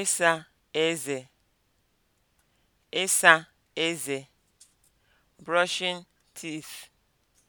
ịsa eze ịsa eze brushing teeth